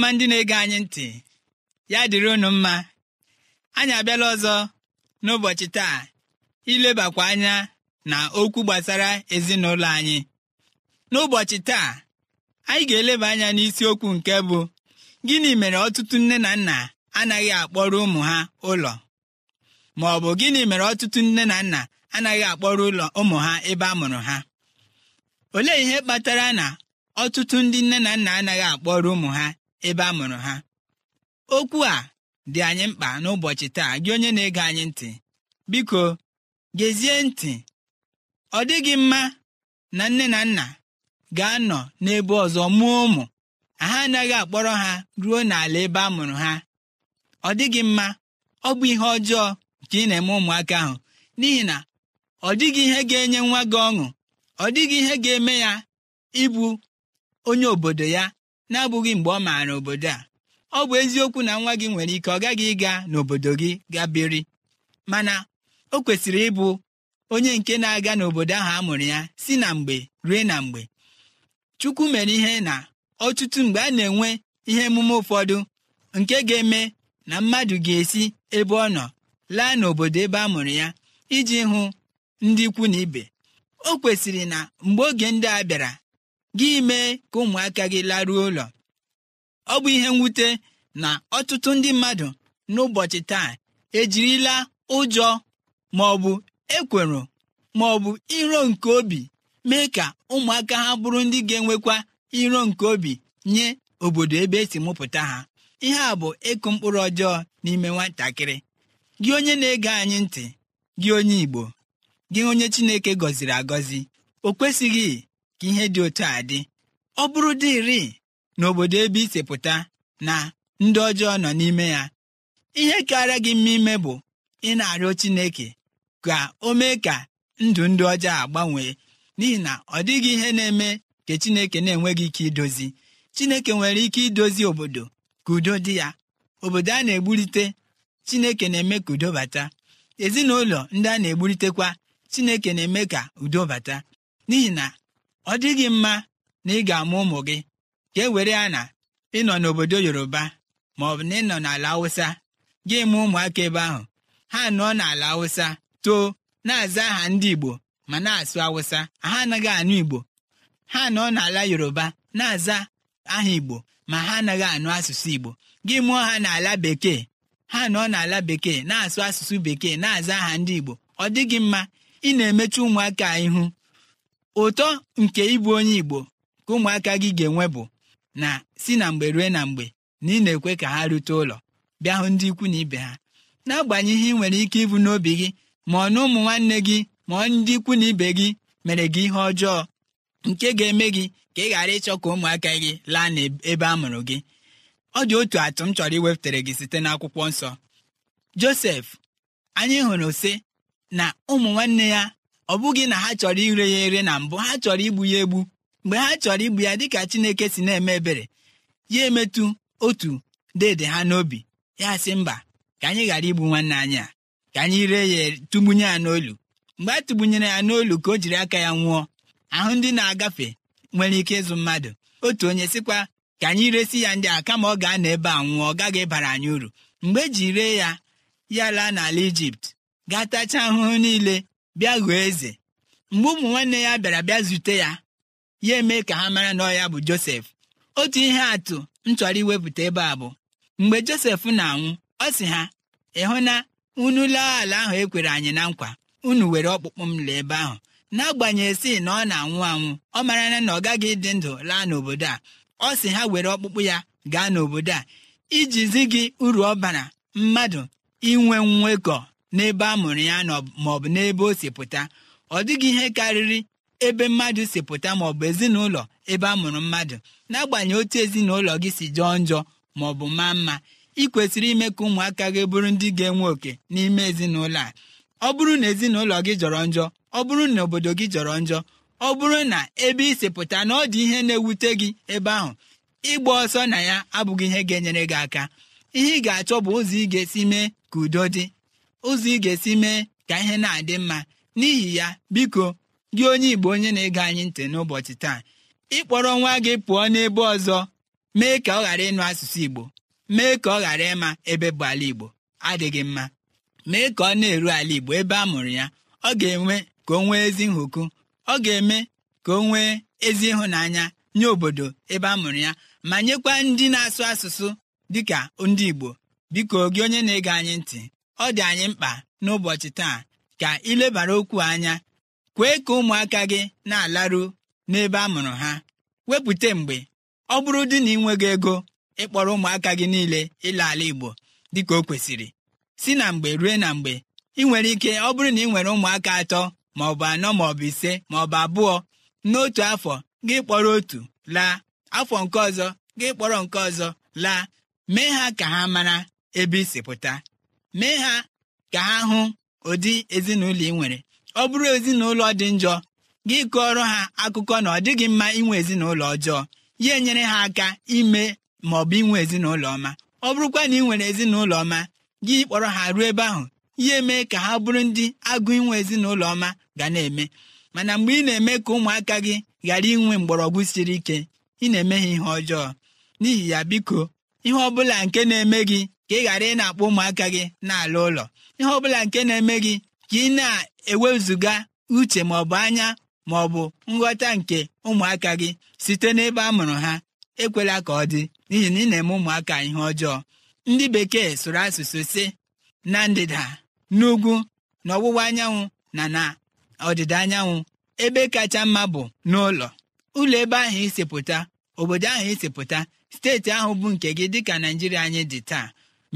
ọma ndị na-ege anyị ntị ya dịrị unu mma anyị abịala ọzọ n'ụbọchị taa ilebakwa anya na okwu gbasara ezinụlọ anyị n'ụbọchị taa anyị ga-eleba anya n'isiokwu nke bụ gịnị mere ọtụtụ nne na nna anaghị akpọrọ ụmụ ha ụlọ ma ọ bụ gịnị mere ọtụtụ nne na nna anaghị akpọrọ ụlọ ụmụ ha ebe a mụrụ ha olee ihe kpatara na ọtụtụ ndị nne na nna anaghị akpọrọ ụmụ ha ebe a mụrụ ha okwu a dị anyị mkpa n'ụbọchị taa gị onye na-ege anyị ntị biko gezie ntị ọ dịghị mma na nne na nna ga-anọ n'ebe ọzọ mụọ ụmụ ha anaghị akpọrọ ha ruo n'ala ebe a mụrụ ha ọ dịghị mma ọ bụ ihe ọjọọ ka ị na-eme ụmụaka ahụ n'ihi na ọ dịghị ihe ga-enye nwa gị ọṅụ ọ dịghị ihe ga-eme ya ịbụ onye obodo ya na-abụghị mgbe ọ maara obodo a ọ bụ eziokwu na nwa gị nwere ike ọ gaghị ịga n'obodo gị gaa biri mana o kwesịrị ịbụ onye nke na-aga n'obodo ahụ amụrụ ya si na mgbe rue na mgbe chukwu mere ihe na ọtụtụ mgbe a na-enwe ihe emume ụfọdụ nke ga-eme na mmadụ ga-esi ebe ọ nọ laa n'obodo ebe a mụrụ ya iji hụ ndị ikwu na ibe o kwesịrị na mgbe oge ndị a bịara gị mee ka ụmụaka gị laruo ụlọ ọ bụ ihe mwute na ọtụtụ ndị mmadụ n'ụbọchị taa ejirila ụjọ ma ọ bụ ekwero ma ọ bụ iro nke obi mee ka ụmụaka ha bụrụ ndị ga-enwekwa iro nke obi nye obodo ebe esi mụpụta ha ihe a bụ ịkụ mkpụrụ ọjọọ n'ime nwatakịrị gị onye na-ege anyị ntị gị onye Igbo gị onye Chineke gọziri agọzi o kwesịghị ka ihe dị otu a dị ọ bụrụ na n'obodo ebe isepụta na ndị ọjọọ nọ n'ime ya ihe karịa gị mma ime bụ ị na-arịọ Chineke ka o mee ka ndụ ndị ọjọọ agbanwee n'ihi na ọ dịghị ihe na-eme ka Chineke na-enweghị ike idozi Chineke nwere ike idozi obodo ka udo dị ya obodo a na-egburite Chineke na-eme ka udo bata ezinụlọ ndị a na-egburitekwa Chineke na-eme ka udo bata n'ihi na ọ dịghị mma na ị ga-amụ ụmụ gị ka e were ya na ịnọ n'obodo yoruba ma ọ bụ na ịnọ n'ala Awụsa. gị mụ ụmụaka ebe ahụ ha nọ n'ala Awụsa too na-aza aha ndị igbo ma na-asụ Awụsa. ha anaghị anụ igbo ha nọ n'ala yoruba na-aza aha igbo ma ha anaghị anụ asụsụ igbo gị mụọ ha n'ala bekee ha nọ n'ala bekee na-asụ asụsụ bekee na-aza aha ndị igbo ọ dịghị mma ị na-emechi ụmụaka ihu ụtọ nke ịbụ onye igbo ka ụmụaka gị ga-enwe bụ na si na mgbe rue na mgbe na ị na-ekwe ka ha rute ụlọ bịa hụ ndị ikwu na ibe ha n'agbanyeghị ihe ị nwere ike ịbụ n'obi gị ma ọ na ụmụ nwanne gị ma ọ ndị ikwu na ibe gị mere gị ihe ọjọọ nke ga-eme gị ka ị ghara ịchọ ka ụmụaka gị laa n'ebe a mụrụ gị ọ dị otu atụ m chọrọ iwepụtara gị site n'akwụkwọ nsọ Josef anyị hụrụ sị na ụmụ nwanne ya ọ bụghị na ha chọrọ ire ya ere na mbụ ha chọrọ igbu ya egbu mgbe ha chọrọ igbu ya dịka Chineke si na-eme ebere ya emetụ otu dede ha n'obi ya sị mba ka anyị ghara igbu nwanne anyị a ka anyị ree ya tụgbunye ya n'olu mgbe a tụgbunyere ya n'olu ka o jiri aka ya nwụọ ahụ ndị na-agafe nwere ike ịzụ mmadụ otu onye sịkwa ka anyị resi ya ndị a kama ọ ga-anọ ebe a nwụọ ọ gaghị ịbara anyị uru mgbe eji ree ya ya laa n'ala Ijipt gaa tachaa ahụhụ niile bịa eze mgbe ụmụ nwanne ya bịara bịa zute ya ya eme ka ha mara na ọ bụ josef otu ihe atụ m chọrọ iwepụta ebe a bụ mgbe josef na-anwụ ọ sị ha ịhụ na unu laa ala ahụ ekwere anyị na nkwa unu were ọkpụkpụ m laa ebe ahụ n'agbanyeghị si na ọ na-anwụ anwụ ọ mara na ọ gaghị ịdị ndụ laa n'obodo a ọ sị ha were ọkpụkpụ ya gaa n'obodo a iji zi gị uru ọ bara mmadụ inwe nwekọ n'ebe a mụrụ ya maọbụ n'ebe o si pụta ọ dịghị ihe karịrị ebe mmadụ si pụta maọbụ ezinụlọ ebe a mụrụ mmadụ n'agbanyeghị otu ezinụlọ gị si jọọ njọ maọbụ maa mma ị kwesịrị ime ka ụmụaka gị bụrụ ndị ga-enwe oke n'ime ezinụlọ a ọ bụrụ na ezinụlọ gị jọrọ njọ ọ bụrụ na obodo gị jọrọ njọ ọ bụrụ na ebe ị si pụta na ọ dị ihe na-ewute gị ebe ahụ ịgba ọsọ na ya abụghị ihe ga-enyere gị aka ihe ị ga-achọ bụ ụzọ ị ga-esi mee ka udo dị ụzọ ị ga-esi mee ka ihe na-adị mma n'ihi ya biko gị onye Igbo onye na-ege anyị ntị n'ụbọchị taa ịkpọrọ nwa gị pụọ n'ebe ọzọ mee ka ọ ghara ịnụ asụsụ Igbo mee ka ọ ghara ịma ebe bụ ala Igbo adịghị mma mee ka ọ na-eru ala Igbo ebe a mụrụ ya ọ ga-enwe ka o nwee ezi nhụkụ ọ ga-eme ka o nwee ezi ịhụnanya nye obodo ebe a mụrụ ya ma nyekwa ndị na-asụ asụsụ dịka ndị Igbo biko gị onye na-ege anyị ntị ọ dị anyị mkpa n'ụbọchị taa ka ilebara okwu anya kwee ka ụmụaka gị na-alaru n'ebe a mụrụ ha wepụta mgbe ọ bụrụ dị na ị nweghị ego ịkpọrọ ụmụaka gị niile ịla ala Igbo dịka o kwesịrị si na mgbe rue na mgbe ị nwere ike ọ bụrụ na ị nwere ụmụaka atọ ma ọ bụ anọ ma ọ bụ ise ma ọ bụ abụọ n'otu afọ gị kpọrọ otu laa afọ nke ọzọ gị kpọrọ nke ọzọ laa mee ha ka ha mara ebe isi pụta mee ha ka ha hụ ụdị ezinụlọ ị nwere ọ bụrụ ezinụlọ dị njọ gị kọọrọ ha akụkọ na ọ dịghị mma inwe ezinụlọ ọjọọ ya enyere ha aka ime ma ọ bụ inwe ezinụlọ ọma ọ bụrụkwa na ị nwere ezinụlọ ọma gị kpọrọ ha ruo ebe ahụ ihe mee ka ha bụrụ ndị agụ inwe ezinụlọ ọma ga na-eme mana mgbe ị na-eme ka ụmụaka gị ghara inwe mgbọrọgwụ siri ike ị na-eme ha ihe ọjọọ n'ihi ya biko ihe ọ bụla nke na-eme gị ka ị ghara ị na-akpọ ụmụaka gị na ụlọ ihe ọbụla nke na-eme gị ka ị na-ewezụga uche ma ọ bụ anya ma ọ bụ nghọta nke ụmụaka gị site n'ebe a mụrụ ha ekwela ka ọ dị n'ihi na ị na-eme ụmụaka ihe ọjọọ ndị bekee sụrụ asụsụ si na ndịda n'ugwu na anyanwụ na na ọdịda anyanwụ ebe kacha mma bụ n'ụlọ ụlọ ebe ahụ pụta obodo ahụ pụta steeti ahụ bụ nke gị dịka naijiria anyị dị taa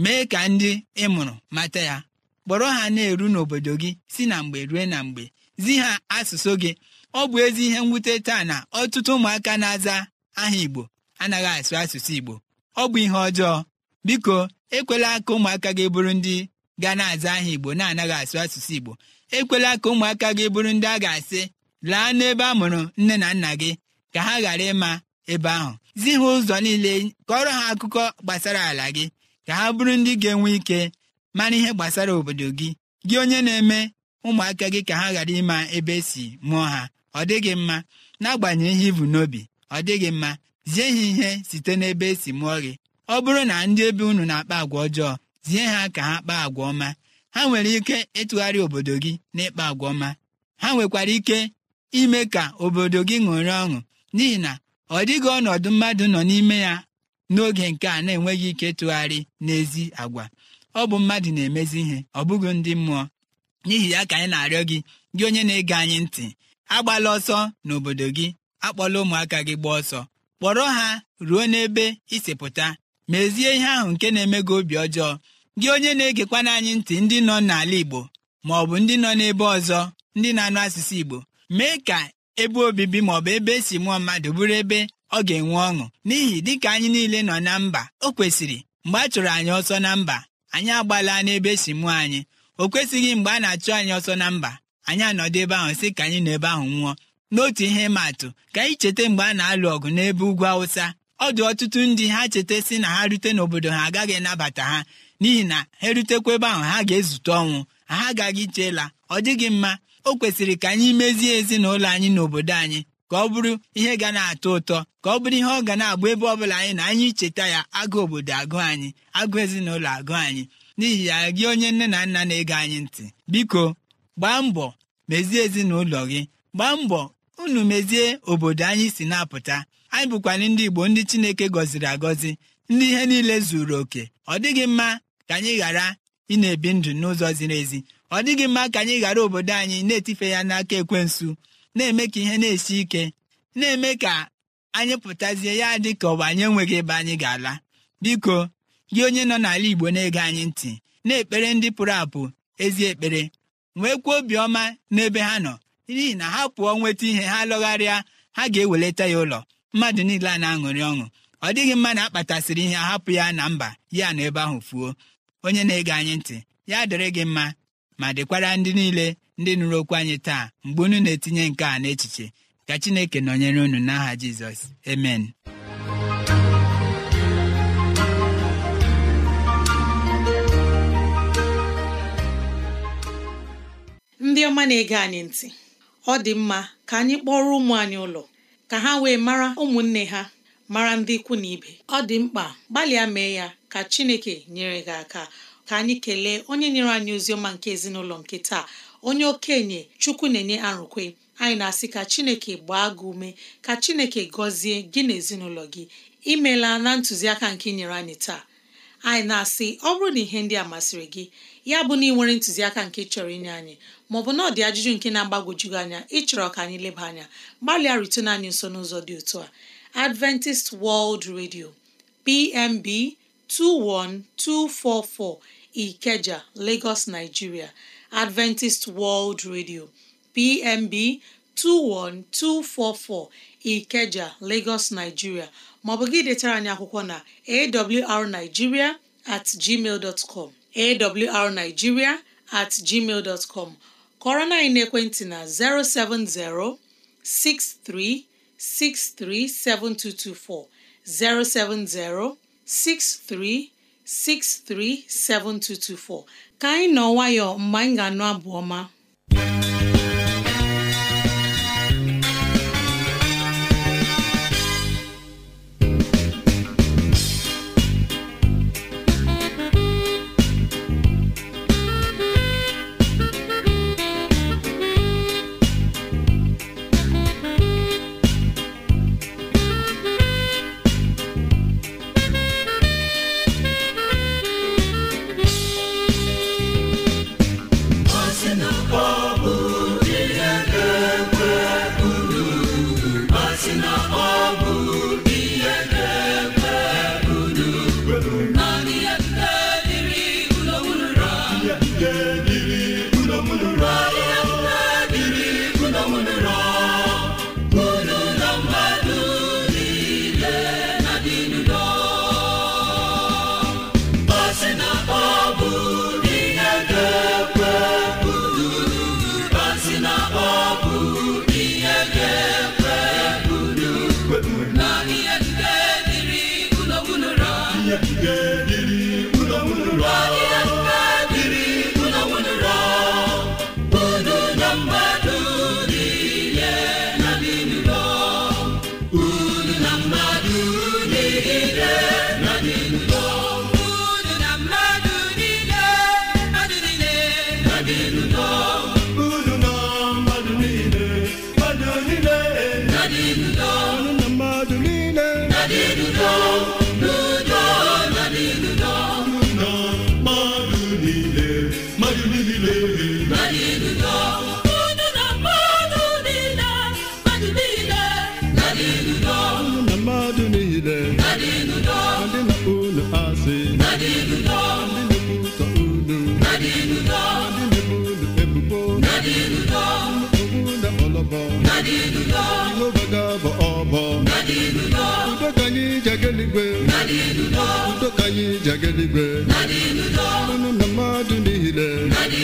mee ka ndị ị mụrụ mata ya kpọrọ ha na-eru n'obodo gị si na mgbe rue na mgbe zi ha asụsụ gị ọ bụ ezi ihe mwute taa na ọtụtụ ụmụaka na-aza aha Igbo anaghị asụ asụsụ Igbo ọ bụ ihe ọjọọ biko ekwela ka ụmụaka gị bụrụ ndị ga na-aza aha Igbo na-anaghị asụ asụsụ Igbo ekwela ka ụmụaka gị bụrụ ndị a ga-asị laa n'ebe a mụrụ nne na nna gị ka ha ghara ịma ebe ahụ zi ha ụzọ niile kọrọ ha akụkọ gbasara ala gị ka ha bụrụ ndị ga-enwe ike mara ihe gbasara obodo gị gị onye na-eme ụmụaka gị ka ha ghara ịma ebe esi mụọ ha ọ dịghị mma n'agbanyeghị ihe ibu n'obi ọ dịghị mma zie ha ihe site n'ebe esi mụọ gị ọ bụrụ na ndị ebe unu na-akpa agwa ọjọọ zie ha ka ha kpaa agwa ọma ha nwere ike ịtụgharị obodo gị n'ịkpa agwa ọma ha nwekwara ike ime ka obodo gị ṅụrị ọṅụ n'ihi na ọ dịghị ọnọdụ mmadụ nọ n'ime ya n'oge nke a na-enweghị ike ịtụgharị n'ezi agwa ọ bụ mmadụ na-emezi ihe ọ bụghị ndị mmụọ n'ihi ya ka anyị na-arịọ gị gị onye na-ege anyị ntị agbala ọsọ n'obodo gị akpọla ụmụaka gị gbaa ọsọ kpọrọ ha ruo n'ebe isipụta mezie ihe ahụ nke na-eme gị obi ọjọọ gị onye na-egekwana anyị ntị ndị nọ n'ala Igbo ma ọ bụ ndị nọ n'ebe ọzọ ndị na-anụ asụsụ Igbo mee ka ebe obibi maọbụ ebe esi mụọ mmadụ bụrụ ebe ọ ga-enwe ọṅụ n'ihi dịka anyị niile nọ na mba o kwesịrị mgbe a chụrụ anyị ọsọ na mba anyị agbala n'ebe si mụọ anyị o kwesịghị mgbe a na-achụ anyị ọsọ na mba anyị anọdụ ebe ahụ sị ka anyị nọ ebe ahụ nwụọ n'otu ihe ma atụ ka anyị cheta mgbe a na-alụ ọgụ n'ebe ugwu awụsa ọ dị ọtụtụ ndị ha cheta sị na ha rute n'obodo ha agaghị anabata ha n'ihi na ha erutekwa ebe ahụ ha ga-ezute ọnwụ ha agaghị chela ọ dịghị mma o kwesịrị ka anyị mezie ezinụlọ anyị n'obodo anyị ka ọ bụrụ ihe ga na-atọ ụtọ ka ọ bụrụ ihe ọ ga na-agba ebe ọ bụla anyị na anyị icheta ya agụ obodo agụ anyị agụ ezinụlọ agụ anyị n'ihi ya gị onye nne na nna na-ege anyị ntị biko gbaa mbọ mezie ezinụlọ gị gbaa mbọ unu mezie obodo anyị si na-apụta anyị bụkwana ndị Igbo ndị Chineke gọziri agọzi ndị ihe niile zuru oke ọ dịghị mma ka anyị ghara ị na-ebi ndụ n'ụzọ ziri ezi ọ dịghị mma ka anyị ghara obodo anyị na-etife ya n'aka ekwensu na-eme ka ihe na-esi ike na-eme ka anyị pụtazie ya dị ka bụ anyị enweghị ebe anyị ga-ala biko gị onye nọ n'ala Igbo na-ege anyị ntị na-ekpere ndị pụrụ apụ ezi ekpere nwee kwuo obiọma n'ebe ha nọ n'ihi na ha pụọ nweta ihe ha lọgharịa ha ga-eweleta ya ụlọ mmadụ niile a na-aṅụrị ọṅụ ọ dịghị mma na akpatasịrị ihe ahapụ ya na mba ya na ebe ahụ fuo onye na-ege anyị ntị ya dịrị gị mma ma dịkwara ndị niile ndị nụrụ okwu anyị taa mgbe unu na-etinye nke a n'echiche ka chineke nọnyere unu n'aha jizọs emen ndị ọma na-ege anyị ntị ọ dị mma ka anyị kpọrọ ụmụ anyị ụlọ ka ha wee mara ụmụnne ha mara ndị ikwu na ibe ọ dị mkpa gbalịa mee ya ka chineke nyere gị aka ka anyị kelee onye nyere anyị ozi ọma nke ezinụlọ nke taa onye okenye chukwu na-enye arụkwe anyị na-asị ka chineke gbaa gị ume ka chineke gọzie gị na ezinụlọ gị imela na ntụziaka nke nyere anyị taa anyị na-asị ọ bụrụ na ihe ndị a masịrị gị ya bụ na ị nwere ntụziaka nke chọrọ inye anyị maọbụ na ọ dị ajụjụ nke na-agbagwoju anya ịchọrọ ka anyị leba anya gbalịa rutena anyị nso n'ụzọ dị otu a Adventist World Radio PMB 21244 Ikeja, Lagos, Nigeria Adventist World Radio, PMB 21244, Ikeja, Lagos, Nigeria maọbụ gị detara anyị akwụkwọ na awrnigeria at gmail dot com awrnigeria at gmail dot com kọrọ na ekwentị na 070 6363 7224 070 6363 7224 ka anyị nọ nwayọọ mgbe anyị ga-anụ abụ ọma udo ka anyị ji aga eluigwe unu na mmadụ niile ma ndị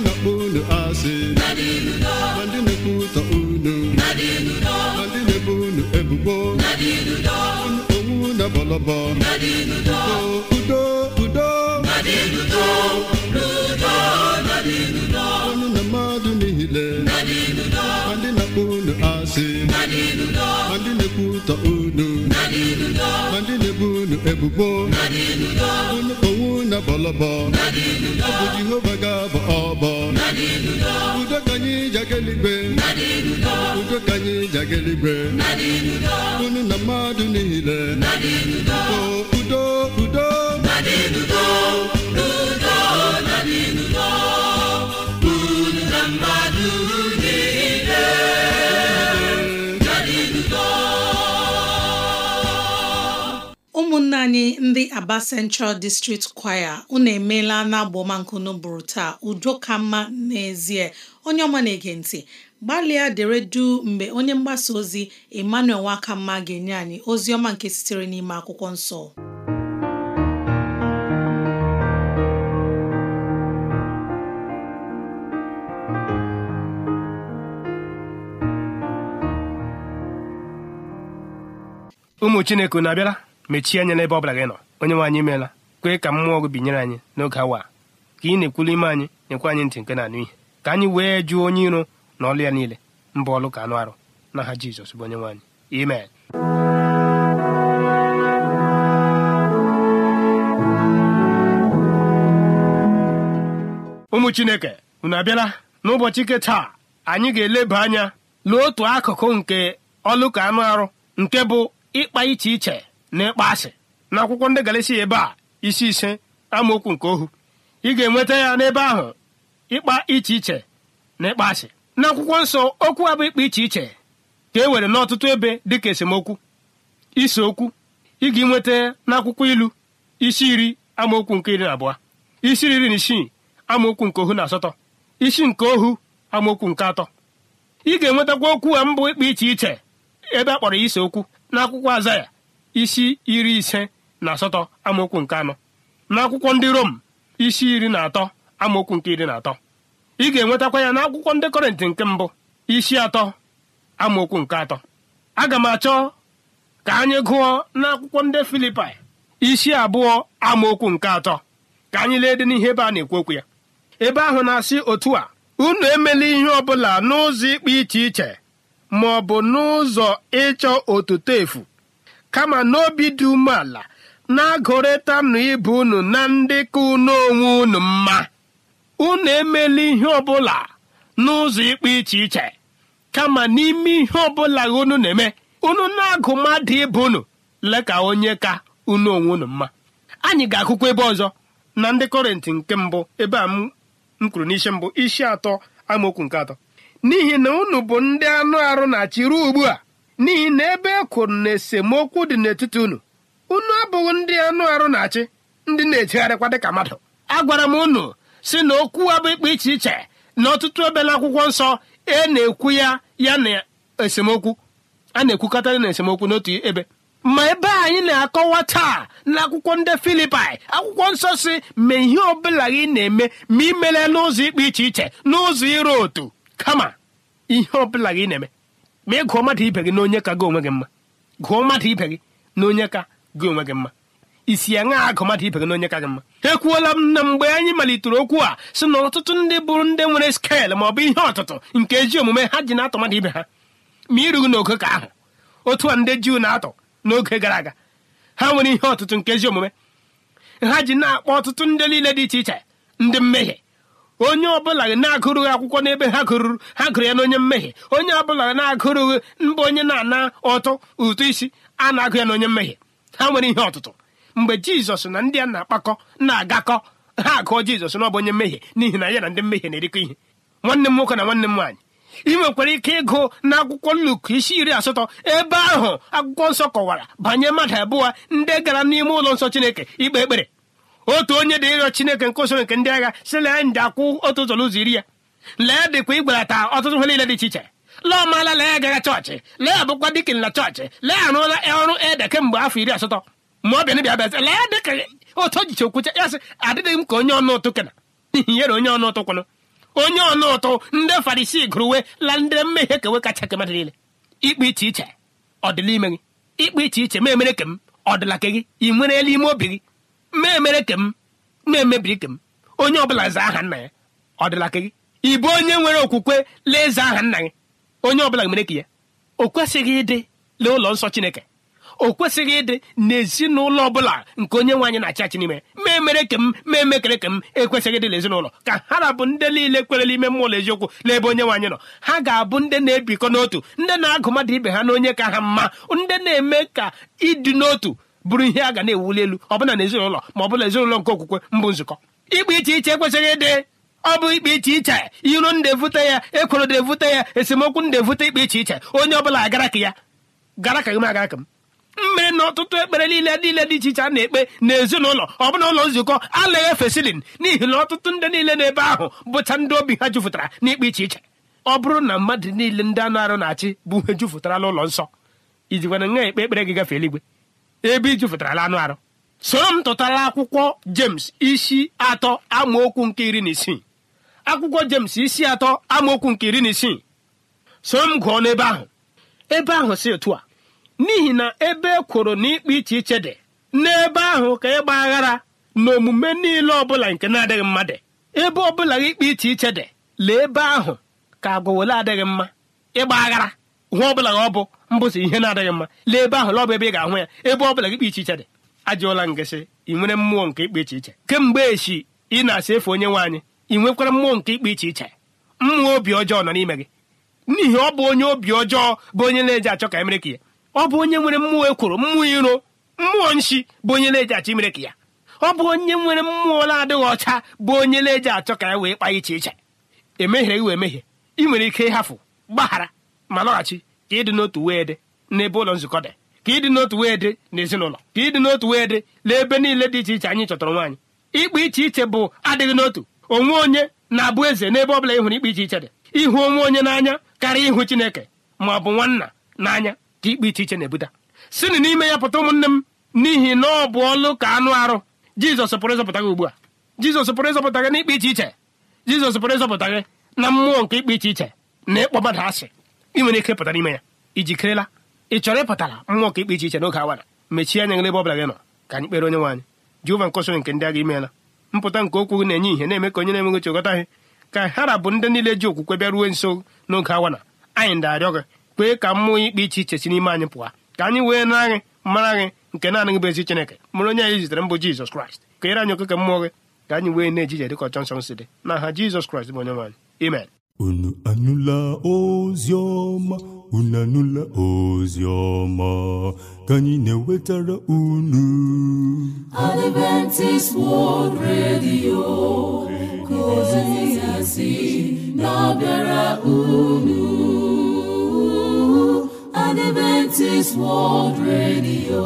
na-akpọ unu asị ma ndị na-ekwutọ unu ma ndị na-ebo unu ebubo unu onwu na bọlọbọ udo udo udo asị ndị na-ekwu ụtọ unu ndị na-ebu unu ebubo unu na bọlọbọ ọbụ bụ jehova ga-abọ ọbọ udo ka anyị jageligwe udo ka anyị jageligwe unu na mmadụ niile udo udo udo udo anyị ndị Aba Central District Choir unu emeela n'agbọmankunu bụrụ taa udo ka mma n'ezie onye ọma na-ege ntị gbalịa dere du mgbe onye mgbasa ozi Emmanuel Nwakamma ga-enye anyị ozi ọma nke sitere n'ime akwụkwọ nsọ ụmụ Chineke na-abịara mechie anya n'ebe ọ bụla gị nọ onye nwe anyị meela kwee ka mmụọ gị binyere anyị n'oge awa ka ị na-ekwulu ime anyị nyekwa anyị ntị nke na-anụ ihe ka anyị wee jụọ onye iro na ọlụ ya niile mba ọlụ ka anụ arụ n'aha Jizọs bụ onye nwe anyị ụmụ chineke unu abịala n'ụbọchị ike taa anyị ga-eleba anya lụọ otu akụkụ nke ọlụ anụ arụ nke bụ ịkpa iche iche n'ịkpa asị na akwụkwọ ndị Galisia ebe a isi ise amaokwu nke ohu ị ga-enweta ya n'ebe ahụ ịkpa iche iche na ịkpa asị na akwụkwọ nsọ okwu abụ ịkpa iche iche ka e nwere n'ọtụtụ ebe dịka esemokwu ise okwu ị ga-enweta n'akwụkwọ ilu isi iri amaokwu nke iri na abụọ isi iri na isii amaokwu nke ohu na asatọ isi nke ohu amaokwu nke atọ ị ga-enwetakwa okwu a mbụ ịkpa iche iche ebe a kpọrọ ya ise okwu n'akwụkwọ aza ya isi iri ise na asatọ amaokwu nke anọ n'akwụkwọ ndị rom isi iri na atọ amaokwu nke iri na atọ ị ga-enwetakwa ya n'akwụkwọ ndị kọrịntị nke mbụ isi atọ amaokwu nke atọ aga m achọ ka anyị gụọ n'akwụkwọ ndị filipai isi abụọ amaokwu nke atọ ka anyị lee dị n'ihe ebe a na-ekwu okwu ya ebe ahụ na-asị otu a unu emela ihe ọ bụla n'ụzọ ikpe iche iche ma ọ bụ n'ụzọ ịchọ otuto efu kama n'obi dị umeala na-agụrịtanụ ibe unu na ndị ka unu onwe unu mma unu emela ihe ọbụla n'ụzọ ịkpa iche iche kama n'ime ihe ọbụla unu na-eme unu na-agụ mmadụ ibe unu lee ka onye ka unu onwe unu mma anyị ga-akụkwa ebe ọzọ na ndị kọrịntị nke mbụ ebe a m kwuru n'isi mbụ isi atọ amaokwu nke atọ n'ihi na unu bụ ndị anụ arụ na-achị ruo ugbu a n'ihi na ebe e kwuru na esemokwu dị n'etiti unu unu abụghị ndị anụ arụ na-achị ndị na-ejegharịkwa dịka mmadụ a gwara m unu si na okwu abụ ikpe iche iche na ọtụtụ ebe akwụkwọ nsọ e na-ekwu ya ya na esemokwu a na-ekwukọta na esemokwu n'otu ebe ma ebe anyị na-akọwa taa n'akwụkwọ ndị filipai akwụkwọ nsọ si ma ihe ọbụla gị na-eme ma imele n'ụzọ ikpe iche iche n'ụzọ ịrụ otu kama ihe ọbụla gị na-eme ma ị gụọ mmadụ ibe gị na onye ka gị onwe gị mma gụọ mmadụ ibe gị na onye ka gị onwe gị mma isi ya ṅaa agụ mmadụ ibe gị na onye ka gị mma ekwuola m na mgbe anyị malitere okwu a sị na ọtụtụ ndị bụrụ ndị nwere skel ma ọ bụ ihe ọtụtụ nke ji omume ha ji na-atọ mmadụ ibe ha ma irughị n'oge ka ahụ otu a ndị juu na-atọ n'oge gara aga ha nwere ihe ọtụtụ nke ezi omume ha ji na-akpọ ọtụtụ ndị niile dị iche iche ndị mmehie onye ọbụla na-agụrụghị akwụkwọ n'ebe ha gụrụrụ ha gụrụ ya n'onye mmehie onye ọbụla na-agụrụghị mbụ onye na-ana ọtụ ụtụ isi a na-agụ ya n'onye mmehie ha nwere ihe ọtụtụ mgbe jizọs na ndị a na-akpakọ na-agakọ ha agụọ jizọs n'ọbụ onye mmehie n'ihi na ya na ndị mmehie na-erikọ ihe nwanne m nwoke na nwanne m nwaanyị ị nwekwara ike ịgụ na akwụkwọ nnukwu isi iri asatọ ebe ahụ akwụkwọ nsọ kọwara banye mmadụ abụọ ndị gara n'ime ụlọ nsọ chineke ikpe ekpere otu onye dị ịrịọ chineke nke usoro nke ndị agha si lee nje akwụ otu ụzọ n'ụzọ iri ya lee dịkwa ịgbarata ọtụtụ ihe niile dị iche iche lee ọmaala lee agaga chọọchị lee bụkwa dịkin na chọọchị lee arụọla ọrụ ede kemgbe afọ iri asatọ ma ọ bịa bịa bịazi lee dịka otu ojiche okwucha ya sị adịghị m ka onye ọnụ ụtụ kena nyere onye ọnụ ụtụ kwanụ onye ọnụ ụtụ ndị farisi gụrụwe la ndị mmehie kewe kacha ke mmadụ niile ikpe iche iche ọ ime gị ikpe iche iche ma emere ke m ọ dịla ke gị ị nwere elu ime obi gị mmemere ke na-emebiri ke onye ọbụla zaa aha nna ya ọ dịla ka gị onye nwere okwukwe lee eze aha nna gị onye ọbụla mere ka ya o kwesịghị ịdị lee ụlọ nsọ chineke o kwesịghị ịdị n'ezinụlọ ọbụla nke onye nwe na-achị n'ime ma kem ke m ke m ekwesịghị ịdị n'ezinụlọ ka ha na-abụ ndị niile kwere n'ime mmụọ eziokwu n'ebe onye nwe nọ ha ga-abụ ndị na-ebikọ n'otu ndị na-agụ mmadụ ibe ha na onye ka ha mma ndị na-eme ka ịdị n'otu bụrụ ihe a ga na-ewuli elu ọbụla na ezinụlọ ma bụla ezinụlọ nke okwukwe mbụ nzukọ ikpe iche iche ekwesịghị ịdị ọ bụ ikpe iche iche iro ndị ya ekworo ya esemokwu ndị evute ikpe iche iche onye ọbụla agara ka ya gara ka gị agara ka m mmere na ọtụtụ ekpere niile niile dị iche iche a na-ekpe n'ezinụlọ ọ bụla ụlọ nzukọ alaghị fesilin n'ihi na ọtụtụ ndị niile n'ebe ahụ bụcha ndị obi ha na n'ikpe iche iche ọ bụrụ na mmadụ niile ndị anụ arụ na-achị bụ ihe jupụtara n'ụlọ nsọ ijikwana nwa ekpe ekpere gị gafee eluigwe ebe la anụ arụ soro m tụtara akwụkwọ James isi atọ amaokwu nke iri na isii akwụkwọ jemes isi atọ amaokwu nke iri na isii soro m gụọ n'ebe ahụ ebe ahụ si otu a n'ihi na ebe ekworo na ikpe iche iche dị n'ebe ahụ ka ịgba aghara na omume niile ọbụla nke na-adịghị mma dị ebe ọbụla ikpe iche iche dị lee ebe ahụ ka agụwele adịghị mma ịgba aghara nwa ọbụla na ọ bụ mbụsị ihe na-adịghị mma lee ebe ahụ lọbụ ebe ị ga-ahụ ya ebe ọbụla gị kpa iche dị ajụọla ngasị ị nwere mmụọ nke ikpe iche iche kemgbe echi ị na-asa efe onye nwaanyị ị nwekwara mmụọ nke ikpe iche iche mmụọ obi ọjọọ nọ n'ime gị n'ihi ọ bụ onye obi ọjọọ bụ onye na-eji achọ ka emereke ya ọ bụ onye nwere mmụọ ekworo mmụọ iro mmụọ nshi bụ onye na-eji achọ ka ya ọ bụ onye nwere mmụọ na-adịghị ọcha bụ onye na-eji achọ ka ya wee kpa iche iche emehiere gị wee mehie ị nwere ike ịhafụ gbaghara ma nọghachi ka ịdị n'otu wee dị n'ebe ụlọ nzukọ dị ka ịdị n'otu wee dị n'ezinụlọ ka ịdị n'otu wee dị n'ebe niile dị iche iche anyị chọtara nwaanyị ikpe iche iche bụ adịghị n'otu onwe onye na-abụ eze n'ebe ọ bụla ịhụrụ ikpe iche iche dị ịhụ onwe onye n'anya karịa ịhụ chineke ma ọ bụ nwanna n'anya ka ikpe iche iche na-ebuta sinụ n'ime ya pụta ụmụnne m n'ihi na ọ bụ ọlụ ka anụ arụ jizọs pụrụ ịzọpụta gị ugbu a jizọs pụrụ ịzọpụta gị n'ikpe iche iche jizọs pụrụ ịzọpụta gị na mmụọ nke ikpe iche iche na ịkpọ mmadụ asị ị nwere ike pụta n'ime ya ijikerela ị chọrọ ịpụtara mmụọ ka ikpe iche iche n'oge awa mechie anya gị ebe ọ bụla gị nọ ka anyị kpere onye nwaanyị jehova nkọsịrị nke ndị agha imeela mpụta nke okwu na-enye ihe na-eme ka onye na-enweghị chekọta ihe ka ha bụ ndị niile ji okwukwe bịa bịaruo nso n'oge awa na anyị ndarịọ gị kpee ka mmụọ ikpe iche iche si n'ime anyị pụọ ka anyị wee na gị mara gị nke naanị gị bụ ezi chineke mụrụ onye anyị zitere mbụ jizọs kraịst ka ere anyị okeke mmụọ gị ka anyị wee na-ejije dịka ọchọ nsọ si dị na aha jizọs kraịst bụ onye nwaanyị amen unu anụla ozioma ọma unu anụla ozi ka anyị na-ewetara unu Adventist World Radio ka ozi ya na-abịara unu Adventist World Radio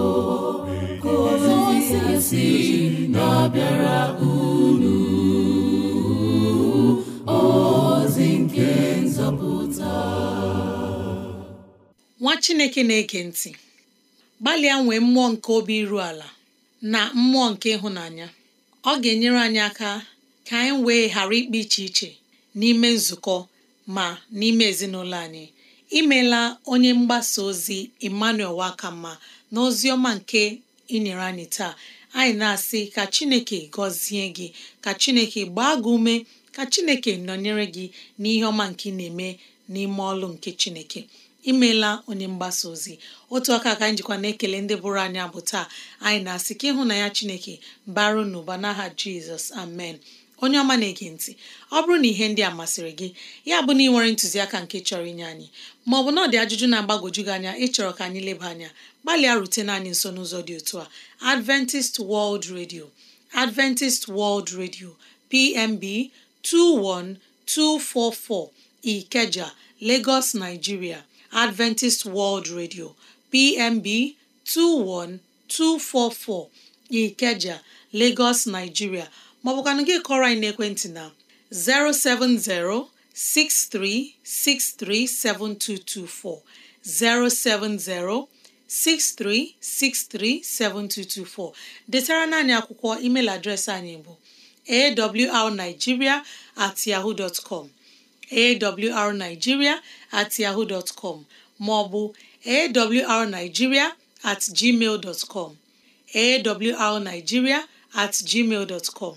ka ozi ya na-abịara unu ọ nwa chineke na-ege ntị gbalịa nwee mmụọ nke obi iru ala na mmụọ nke ịhụnanya ọ ga-enyere anyị aka ka anyị wee ghara ikpe iche iche n'ime nzukọ ma n'ime ezinụlọ anyị imela onye mgbasa ozi Emmanuel Wakamma na ozi ọma nke inyere anyị taa anyị na-asị ka Chineke gọzie gị ka Chineke gbaa gị ume ka chineke nọnyere gị n'ihe ọma nke ị na-eme n'ime ọlụ nke chineke imeela onye mgbasa ozi otu aka ka anyị jikwa na-ekele ndị bụrụ anyị abụ taa anyị na-asị ka ịhụ na ya chineke baru n'ụba n'aha jizọs amen onye ọma na-ege ntị ọ bụrụ na ihe ndị a masịrị gị ya bụ na ị nwere ntụziaka nke chọrọ inye anyị ma ọ bụ na ọ dị ajụjụ na agbagoju gị anya ịchọrọ ka anyị leba anya gbalịa rutena anyị nso n'ụzọ dị otu a Adventist World Radio Adventist World Radio PMB 21244 Ikeja, Lagos, Nigeria; Adventist World Radio, PMB 21244 Ikeja, Lagos, Nigeria ma ọ bụkwanụ gị kọrọ anyị n'ekwentị na 7224, 070 63637224 detara na naanị akwụkwọ email adreesị anyị bụ awrnigeria at yahoo dot com awrnigeria at yahoo dot com maọbụ awrnigeria at gmail dot com awrnigeria at gmail dot com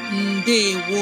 ndewo